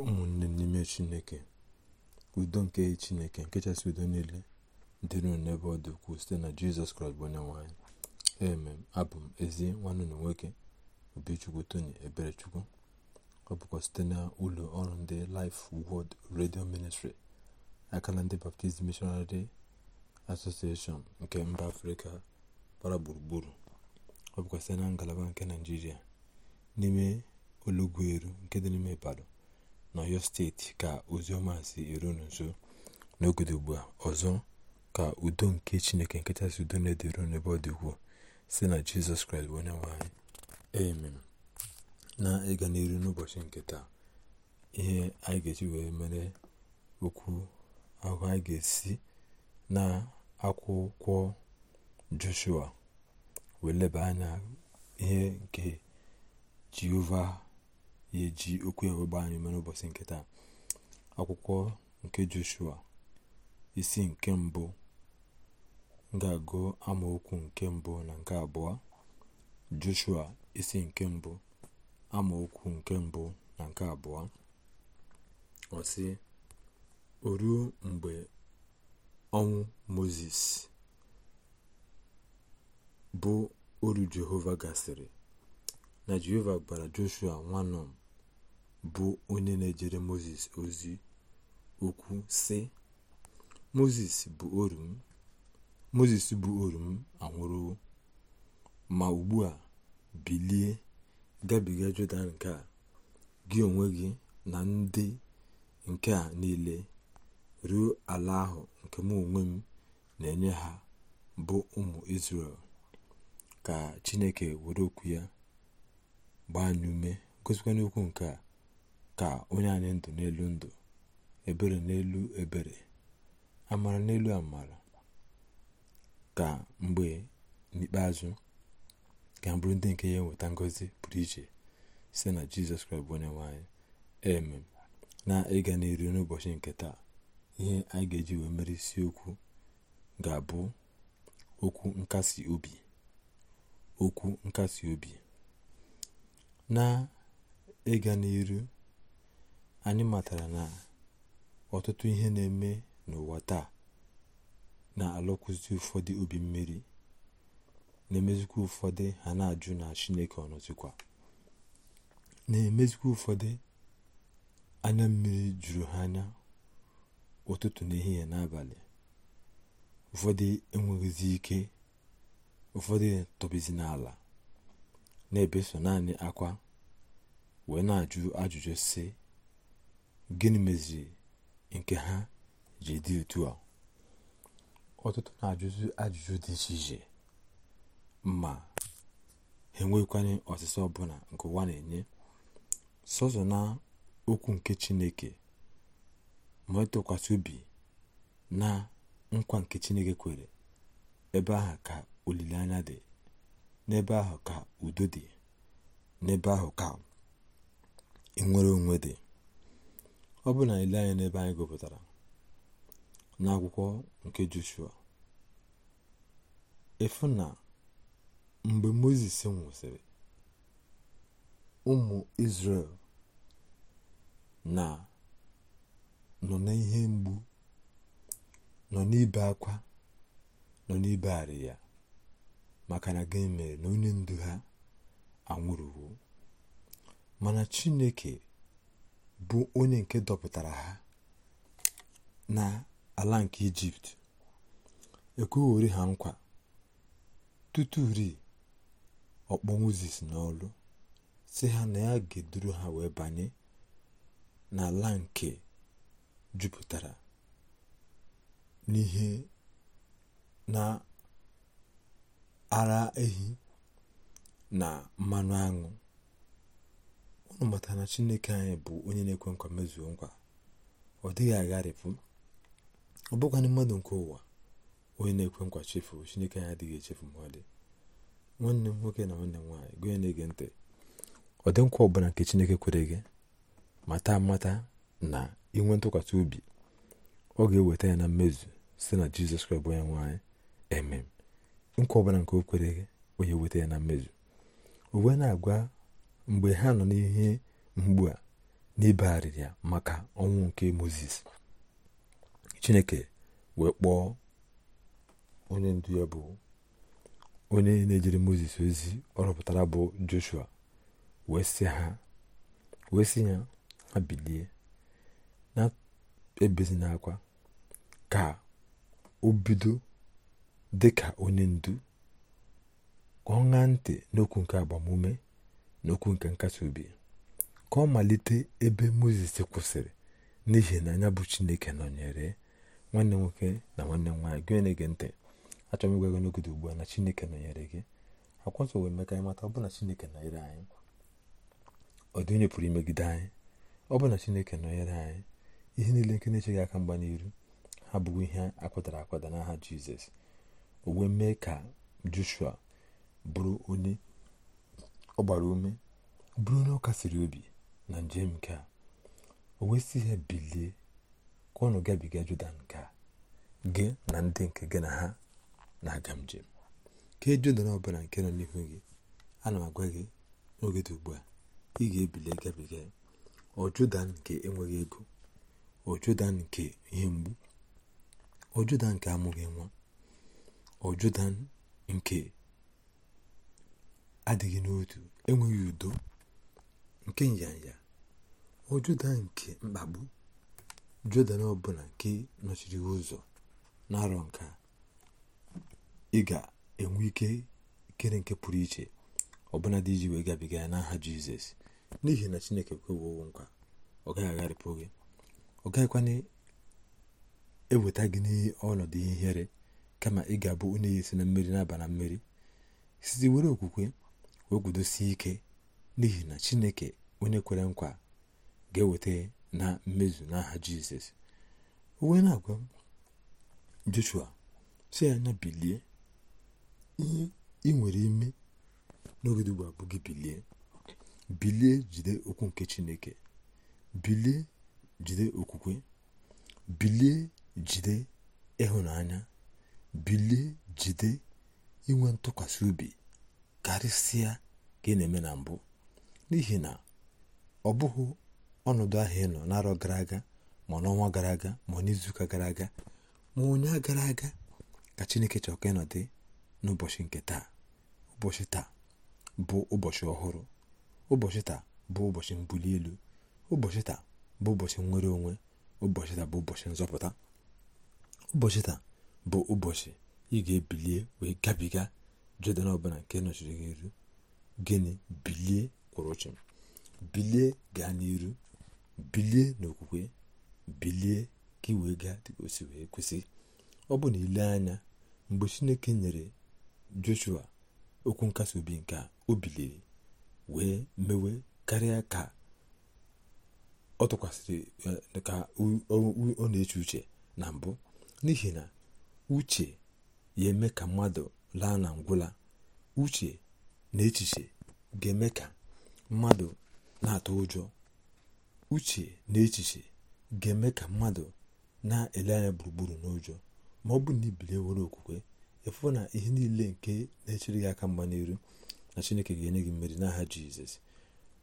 ụmụnne n'ime chineke udo nke chineke nke chasị udo niile dịrị n'ebe ọ dị ukwuu site na jizọs kraịst bụ onye nwanyị eme abụ m ezi nwanne na nwoke obichukwu tony eberechukwu ọ bụkwa site na ụlọ ọrụ ndị Life Word Radio Ministry aka na ndị Baptist Missionary Association nke mba afrịka gbara gburugburu ọ bụkwa site na ngalaba nke naijiria n'ime olugbu eru nke dị n'ime Ibadan n'ọyọ steeti ka oziọma si eru unu nso ugbu a ọzọ ka udo nke chineke si udo na-edere n'ebe ọ dị ukwuu si na jizọs kraịst bụ onye nwaanyị anyị amen na ịga n'iru n'ụbọchị nke taa ihe anyị ga-eji wee mere okwu ahụ anyị ga-esi na akwụkwọ joshua wee leba anya ihe nke jehova na-eji okwu ya wee gbaa anyị mere ụbọchị nke taa akwụkwọ nke joshua isi nke mbụ ga-agụ amaokwu nke mbụ na nke abụọ joshua isi nke mbụ amaokwu nke mbụ na nke abụọ ọsị sị o mgbe ọnwụ moses bụ oru jehova gasịrị na jehova gbara joshua nwa bụ onye na-ejere moses ozi okwu si moses bụ oru m moses bụ oru m anwụrụwo ma ugbu a bilie gabiga jọdan nke a gị onwe gị na ndị nke a niile ruo ala ahụ nke m onwe m na-enye ha bụ ụmụ israel ka chineke were okwu ya gbaa anyị ume gosikwa n'okwu nke a ka onye anyị ndụ n'elu ndụ ebere n'elu ebere amara n'elu amara ka mgbe n'ikpeazụ ka bụrụ ndị nke ya enweta ngozi pụrụ iche site na jizọs kraịst bụ onye nwanyị eme na ịga n'iru n'ụbọchị nke taa ihe anyị ga-eji wee mere isiokwu ga-abụ okwu nkasi obi okwu nkasi obi na ịga n'iru anyị matara na ọtụtụ ihe na-eme n'ụwa taa na-alụkwụzi ụfọdụ obi mmiri na-emezikwa ụfọdụ ha na-ajụ na chineke ọnọzikwa na-emezikwa ụfọdụ anya mmiri juru ha anya ụtụtụ n'ehihie n'abalị ụfọdụ enweghịzi ike ụfọdụ tọbizi n'ala na-ebeso naanị akwa wee na-ajụ ajụjụ si gịnị meziri nke ha ji dị otu a ọtụtụ na ajụzụ ajụjụ dị iche iche ma ha enweghịkwanye ọsịsa ọbụla nke ụwa na-enye sọzọ na okwu nke chineke ma ịtụkwasị e obi na nkwa nke chineke kwere ebe ahụ ka olileanya dị n'ebe ahụ ka udo dị n'ebe ahụ ka enwere onwe dị ọ bụ na ile anya n'ebe anyị gụpụtara n'akwụkwọ nke joshua efu na mgbe Mozis nwụsịrị ụmụ Izrel, na nọ n'ihe mgbu nọ n'ibe akwa nọ n'ibe arị ya maka na gị mere na onye ndu ha anwụrụwo mana chineke bụ onye nke dọpụtara ha na ala nke ijipt ekwughori ha nkwa tuturi ọkpọ mozis n'ọlụ si ha na ya ga ha wee banye n'ala nke jupụtara n'ihe na ara ehi na mmanụ aṅụ unu matara na chineke anyị bụ onye na-ekwe nkwa mezuo nkwa ọ dịghị agharịpụ ọ bụkwanị mmadụ nke ụwa onye na-ekwe nkwa chefu chineke anyị adịghị echefu ma nwanne m nwoke na nwanne m nwaanyị gụnye na-ege ntị ọ dị nkwa ọbụla nke chineke kwere gị mata mata na inwe ntụkwasị obi ọ ga-eweta ya na mmezu site na jizọs kraịst bụ onye nwaanyị emem nkwa ọbụla nke o kwere gị onye weta ya na mmezu o wee na-agwa mgbe ha nọ n'ihe mgbu a n'ibegharịrị ya maka ọnwụ nke moses chineke wee kpọọ onye ndu ya bụ onye na-ejere moses ozi ọrụpụtara bụ joshua wee sị ha ya ha bilie na-ebezi n'akwa ka o bido dị ka onye ndu ka ọ ṅaa ntị n'okwu nke agbamume n'okwu nke nkasi obi ka ọ malite ebe moses kwụsịrị n'ihi na anya bụ chineke nọnyere nwanne nwoke na nwanne nwaanyị gị na-ege ntị achọrọ m ịgwa gị n'oge ugbu a na chineke nọnyere gị nsọ emeka anyị mata ọ bụ na chineke nọnyere anyị ọ dị onye pụrụ imegide anyị ọ bụ na chineke nọnyere anyị ihe niile nke na-echeghị aka mgba n'iru ha bụgo ihe akwadara akwada n'aha jizọs o wee mee ka joshua bụrụ onye ọ gbara ume bụrụ onye ọ kasiri obi na njem nke a o wee ya ihe bilie ka ọnụ gabiga Jọdan nke a gị na ndị nke gị na ha na-aga njem kee Jọdan ọbụla nke nọ n'ihu gị ana m agwa gị n'oge dị ugbu a ị ga-ebili gabiga ọ nke enweghị ego ọ nke ihe mgbu ọ Jọdan nke amụghị nwa ọ nke adịghị n'otu enweghị udo nke nyanya ọ nke mkpagbu judan ọbụla nke nọchiri ụzọ na-arọ nka ị ga-enwe ike ikere nke pụrụ iche ọbụla dị iji wee gabiga ya n'aha Jizọs n'ihi na Chineke kwewowo nkwa ọ gaghị agharịpụ gị ọ gaghịkwana eweta gị n'ọnọdụ ihere kama ị ga-abụ onye esi na mmeri na-aba na mmeri site were okwukwe o gudosie ike n'ihi na chineke onye kwere nkwa ga-eweta na mmezu n'aha jizọs uwe na-agwa joshua si anya bilie ihe ị nwere ime n'oge ugbu bilie bilie jide okwu nke chineke bilie jide okwukwe bilie jide ịhụnanya bilie jide inwe ntụkwasị obi karịsịa ka ị na-eme na mbụ n'ihi na ọ bụghị ọnọdụ ahụ ị nọ n'arọ gara aga ma n'ọnwa gara aga ma n'izuụka gara aga ma onye gara aga ka chineke chọrọ ka ịnọdụ n'ụbọchị nke taa ụbọchị taa bụ ụbọchị ọhụrụ ụbọchị taa bụ ụbọchị mbuli elu ụbọchị taa bụ ụbọchị nnwere onwe ụbọchị taa bụ ụbọchị nzọpụta ụbọchị taa bụ ụbọchị ị ga-ebilie wee gabiga jọdan ọbụla nke nọchiri gị iru gịnị bilie kwụrụ chịm bilie gaa n'iru bilie n'okwukwe bilie ka ị wee gaa dịka osi wee kwesị ọ bụ na ile anya mgbe chineke nyere joshua okwu nkasi obi nke a o biliri wee mewe karịa ka ọ tụkwasịrị eh, ka ọ na-eche uche na mbụ n'ihi na uche ya eme ka mmadụ laa na ngwụla uche na echiche ga-eme ka mmadụ na-atụ ụjọ uche na echiche ga-eme ka mmadụ na-ele anya gburugburu n'ụjọ ma ọ bụrụ na ibili nwere okwukwe ịfụ na ihe niile nke na-echere gị aka mma n'iru na chineke ga-enye gị mmeri n'aha jizọs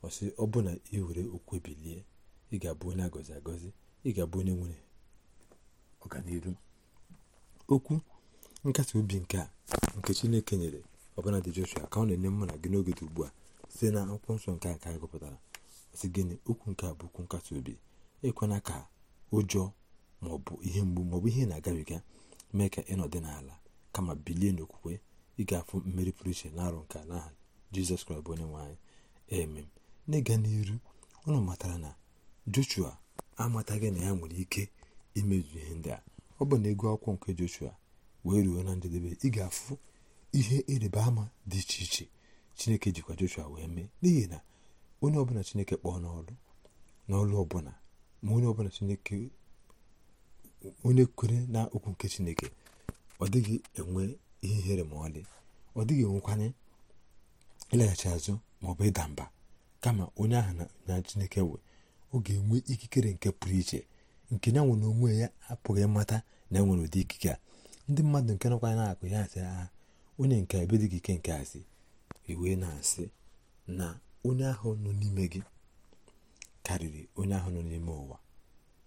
ọsị ọ bụ na ị were okwukwe bilie ị ga-abụ onye agọzi agọzi ị ga-abụ onye nwere ọganiru okwu nkasi obi nke a nke chineke nyere ọbụla dị joshua ka ọ na-enye mụ na gị n'oge dị ugbu a site na akwụkwọ nsọ nke a ka anyị gụpụtara si gịnị okwu nke a bụ okwu nkasi obi ịkwena ka ụjọ maọbụ ihe mgbu maọbụ ihe na-agabiga mee ka ịnọdị n'ala kama bilie n'okwukwe ị ga-afụ mmeri pụrụ iche na arụ nke a n'aha jizọs kraịst bụ onye nwanyị emem n'ịga n'iru ụnụ matara na joshua amataghị na ya nwere ike imezu ihe ndị a ọ bụ na egwu akwụkwọ nke joshua wee ruo na njedebe ị ga-afụ ihe ịrịba ama dị iche iche chineke jikwa joshua wee mee n'ihi na onye ọbụla chineke kpọọ n'ọrụ n'ọrụ ọbụla ma onye ọbụla chineke onye kwere na okwu nke chineke ọ dịghị enwe ihe ihere ma ọlị ọ dịghị enwekwanye ịlaghachi azụ ma ọ bụ ịda mba kama onye ahụ na chineke wee ọ ga-enwe ikikere nke pụrụ iche nke ya nwere onwe ya apụghị ịmata na enwere ụdị ikike a ndị mmadụ nke nọkwa na-akụ ya asị ha ah, onye nke dị gị ike nke asị iwee na-asị na onye ahụ nọ n'ime gị karịrị onye ahụ nọ n'ime ụwa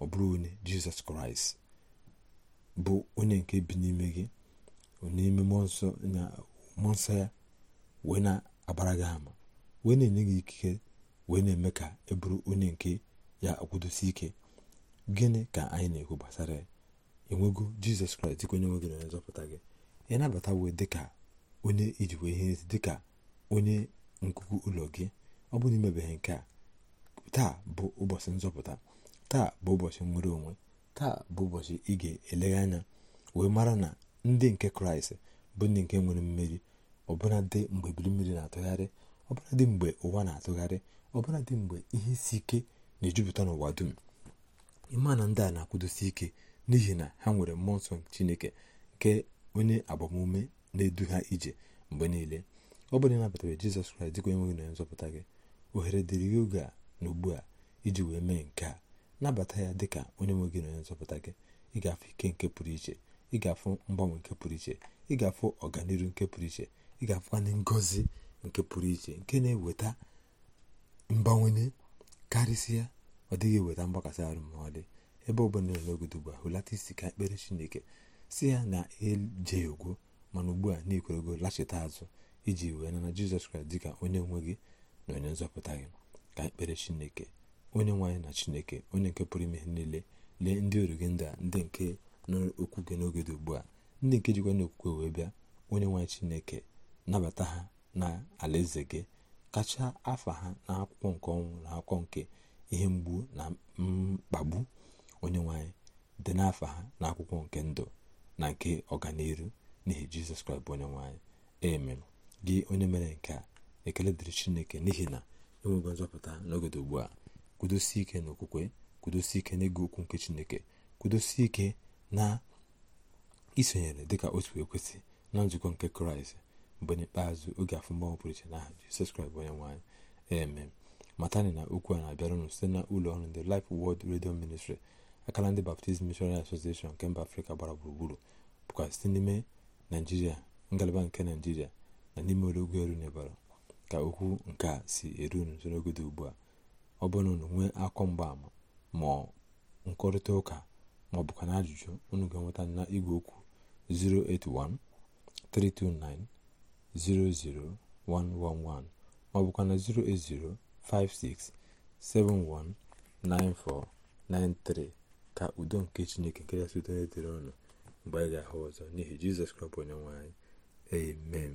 ọ bụrụ onye jizọs kraịst bụ onye nke bi n'ime gị n'ime mmụọ nsọ ya wee na-agbara gị ama wee na-enye gị ikike wee na-eme ka ị e bụrụ onye nke ya akwụdosi ike gịnị ka anyị na-ekwu gbasara ya enwego jizọs kraịst dịka onye nwe gị onye nzọpụta gị ị nabatawo dịka onye ijiwe ihe ezi dịka onye nkuku ụlọ gị ọ bụrụ imebeghị nke a taa bụ ụbọchị nzọpụta taa bụ ụbọchị nwere onwe taa bụ ụbọchị ị ga-elegha anya wee mara na ndị nke kraịst bụ ndị nke nwere mmeri dị mgbe biri mmiri na-atụgharị dị mgbe ụwa na-atụgharị dị mgbe ihe isi ike na-ejupụta n'ụwa dum ịma na ndị a na-akwụdosi ike n'ihi na ha nwere mmụọ nsọ chineke nke onye agbamume na-edu ha ije mgbe niile ọ bụrụ ịnabatara jizọs kraịst dịka enweghị na nzọpụta gị ohere dịrị gị oge a na ugbu a iji wee mee nke a nabata ya dịka onye nweghị n'onye onye nzọpụta gị ị ga-afụ ike nke pụrụ iche ị ga-afụ mgbanwe nke pụrụ iche ị ga-afụ ọganihu nke pụrụ iche ị ga-afụkwanye ngọzi nke pụrụ iche nke na-eweta mgbanwenye karịsịa ọ dịghị eweta mgbakasị arụ ma ọ dị ebe ọbụla n'ogodo ugbu a hulata isi ka ekpere chineke si ya na eje ugwu mana ugbu a n'ikwerego lachita azụ iji wee nana jizọs kraịst dịka onye nwe gị na onye nzọpụta gị ka ekpere chineke onye nwaanyị na chineke onye nke pụrụ ime niile lee ndị ọrụ gị ndị a ndị nke n'okwu gị n'oge dị ugbu a ndị nke jikwa n'okwukwe wee bịa onye nwaanyị chineke nabata ha na alaeze gị kacha afa ha na akwụkwọ nke ọnwụ na akwụkwọ nke ihe mgbu na mkpagbu onye nwanyị dị n'afọ ha n'akwụkwọ nke ndụ na nke ọganihu n'ihi jizọs kraịst bụ onye nwanyị gị onye mere nke a ekele dịrị chineke n'ihi na enwego nzọpụta n'ogodo ugbu a kwudosi ike na okwukwe ike n'ịgụ okwu nke chineke kwudosi ike na isonyere dịka otu ekwesị na nzukọ nke kraịst mgbe n'ikpeazụ oge afụmọnwụ pụrụ iche n'aha jizọs kraịst bụ onye nwanyị amen matani na okwu a na-abịara unu site na ụlọ ọrụ ndị Life wod Radio Ministry akala ndị baptizim mishonari asosieshọn nke mba afrịka gbara gburugburu bụkwa site n'ime naijiria ngalaba nke naijiria na n'ime olugwu eru n'ebara ka okwu nke a si eru n'oge dị ugbu a ọ bụrụ na nwee akọ mgbaama ma nkọrịta ụka ma ọ bụkwa na ajụjụ unu ga-enweta na igwe okwu 08132900111 ma ọ bụkwa na 08056719493 ka udo nke chineke nke ya site n'etere ọnụ mgbe anyị ga-ahụ ọzọ n'ihi jizọs kraịst onye nwe amen